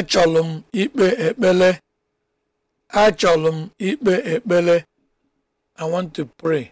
achọlụ m ikpe ekpele achọlụ m ikpe ekpele i want to pray